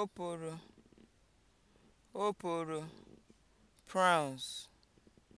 oporo oporo (prawns)